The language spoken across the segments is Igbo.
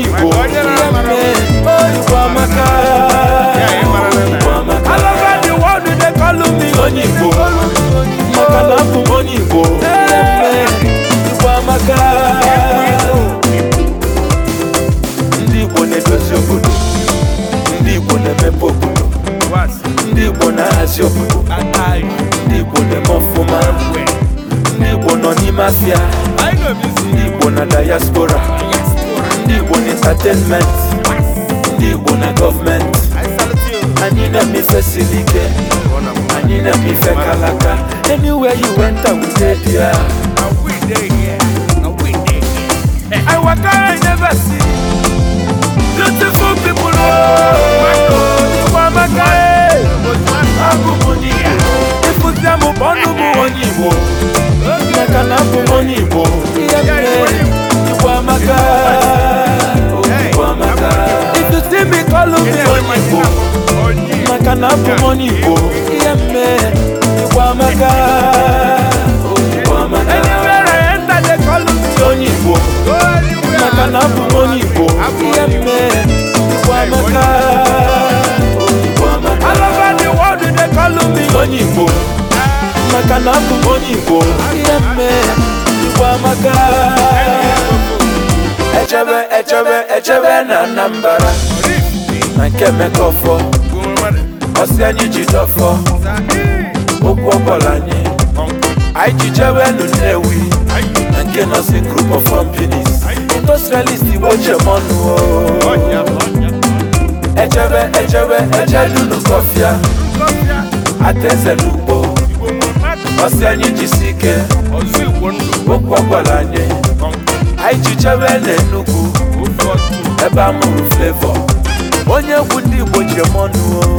igbo igbo onye igbo maka na onye igbo igbo amaka ndị igbo na-edozi obodo ndị igbo na-emepe obodo igbo na-ahazi obodo igbo na-eme ọfụma ndị nọ n'ime afịa ndị igbo na diaspora ndị Igbo n'entertainment ndị Igbo na gọọmenti anyị na-eme ife siri anyị na kalaka anywhere you went I will dey there I waka I never see beautiful people oh amaka bụ onye na bụ mọni igbo ihe mme ịgwa amaka onye igbo maka na abụ onye igbo ihe mme ịgwa amaka onye igbo maka na abụ onye igbo ihe mme ịgwa amaka echebe echebe echebe na Anambra na nke Emeka ọsị anyị ji dọfọ okwu ọbọla anyị anyị ji jewe nu Nnewi na nke nọsi group of companies industrialist igbo chemọnụ echebe echebe echedunu kọfịa ateze n'ugbo ọsị anyị si ike okwu ọbọla anyị anyị ji jewe na ebe a mụrụ Flavour onye egwu ndị igbo chemọnụ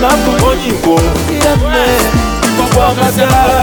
n'a abụ onye Igbo ihe